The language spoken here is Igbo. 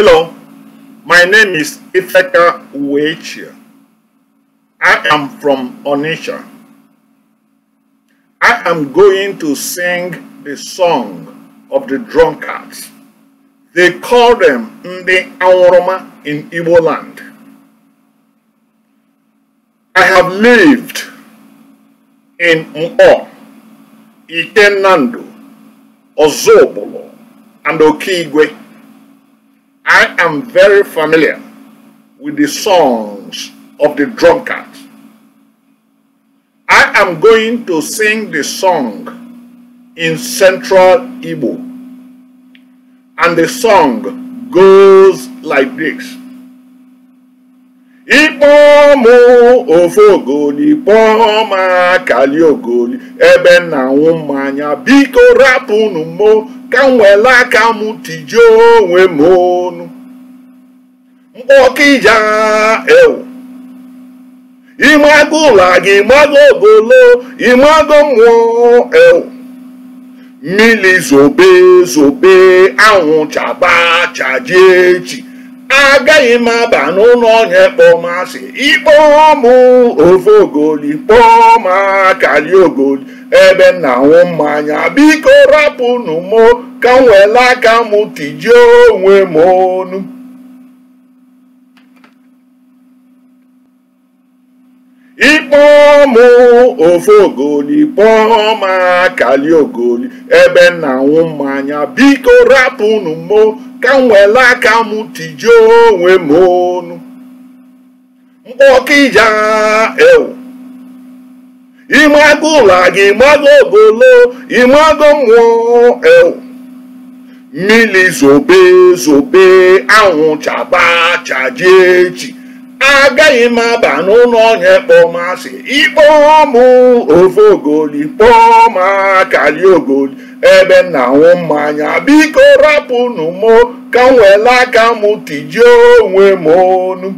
Hello, my name is Ifeka Uechi. I am from Onisha. I am going to sing the song of the drunkards. They call them Ndi Aworoma in Igbo land. I have lived in Mpo, Ikenando, Ozobolo, and Okigwe. I am very familiar with the songs of the drunkard. I am going to sing the song in Central Igbo. And the song goes like this pọ́n mú ofe ogoli pọ́n máa kàlí ogoli ebe na nwụ mmanya biko rapụnụ mo ka m were aka m tijie onwe m ọnụ mkpọkija ewu ịmago ụlọ gị ịmago ogolo ịmago mmụọ ewu mmiri zobe zobe anwụ chaba chajie echi agaghị m aba n'ụlọ onye kpọmasị ikpọ m ofe ogoli kpọọ m akali ogoli ebe m na-aṅụ mmanya biko rapụnụ mụ ka m aka m tijie onwe m ọnụ pọ́ọ̀mù ofe ogoli pọ́ọ̀mù akali ogoli ebe na anwụ mmanya biko rapụnụ mo ka m were aka m tijie onwe m ọnụ mkpọkija ewu ịmago ụlọ gị ịmago ogolo ịmago mmụọ ewu mmiri zobe zobe anwụ chaba chajie echi agaghị m aba n'ụlọ onye asị ikpọọ m ofe ogoli kpọọ m akali ogoli ebe m na mmanya biko rapụnụ m ka m nwere aka m tijie onwe m ọnụ